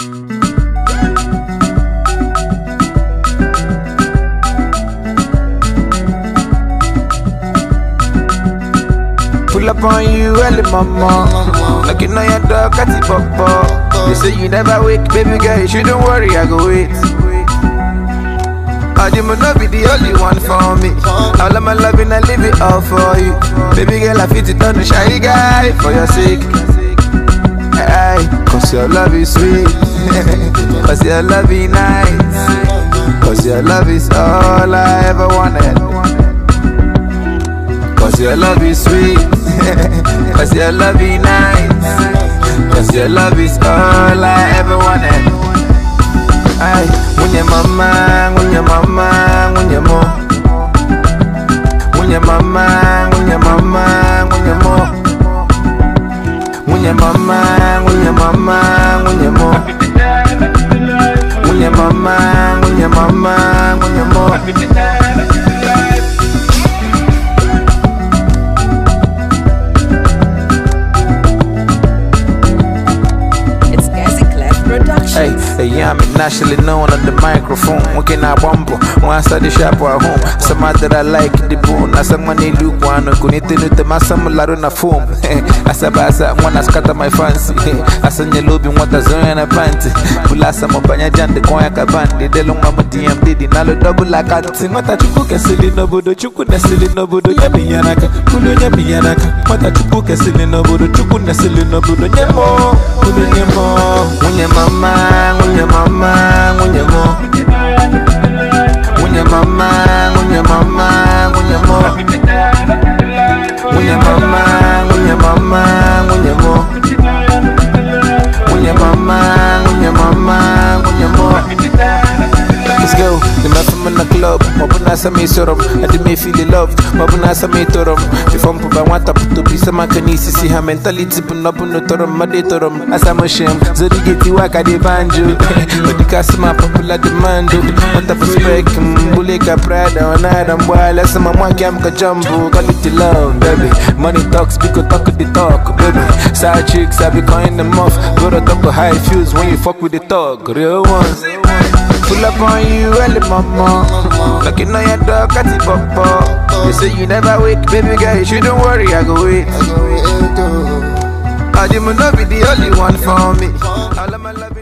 Pull up on you early, mama. Like you know your dog got papa. They say you never wake, baby girl. You shouldn't worry, I go wait. I you not be the only one for me. All of my loving, I leave it all for you. Baby girl, I fit it on the shy guy for your sake. right. Cause your love is sweet. Cause your love is nice. Cause your love is all I ever wanted. Cause your love is sweet. Cause your love is nice. Cause your love is all I ever wanted. Aye, when your mama mama, when your mama, when your mom. When your mama, when your mama, when your mom. Hey, I'm nationally known on the microphone. Okay, now Wambo, once at shop at home. Some that I like the bone. As someone money, look one, I'm going to do the Masamu Laruna foam. As a basa, one has scatter my fancy. As an Yelubi, what a zone and a panty. Pulasa Mopanya Jan, the Koyaka Bandi, the Longama DMD, the Nalo double like a thing. What a chuku can silly nobodo, chuku na silly nobodo, Yabi Yanaka, Kulu Yabi Yanaka. What a chuku can silly nobodo, chuku na silly nobodo, Nyemo, Kulu Nyemo, mama ngunya mama ngunya mo ngunya mama ngunya mama ngunya mo ngunya mama ngunya mama nasa me sorom ade me feel loved mabu nasa me torom before mpo ba nwata pụto bụ ise maka n'isi si ha mentality bụ nọbụ n'ụtọrọ no, torom asamoshem zorigeti waka dị banjo odikasị ma popular demand nwata bụ spek mbule mm, ka prada ọ na-ada mgbaala sị ma nwa gam ka jumbo quality love baby money talks biko talk the talk baby side chicks I be calling them off go to talk how it feels when you fuck with the talk real ones pull up on you early mama Looking on your door, cut it pop pop. You say you never wake, baby girl, you shouldn't worry, I go wait. I go wait, oh. I didn't know be the only one for me. All of my love.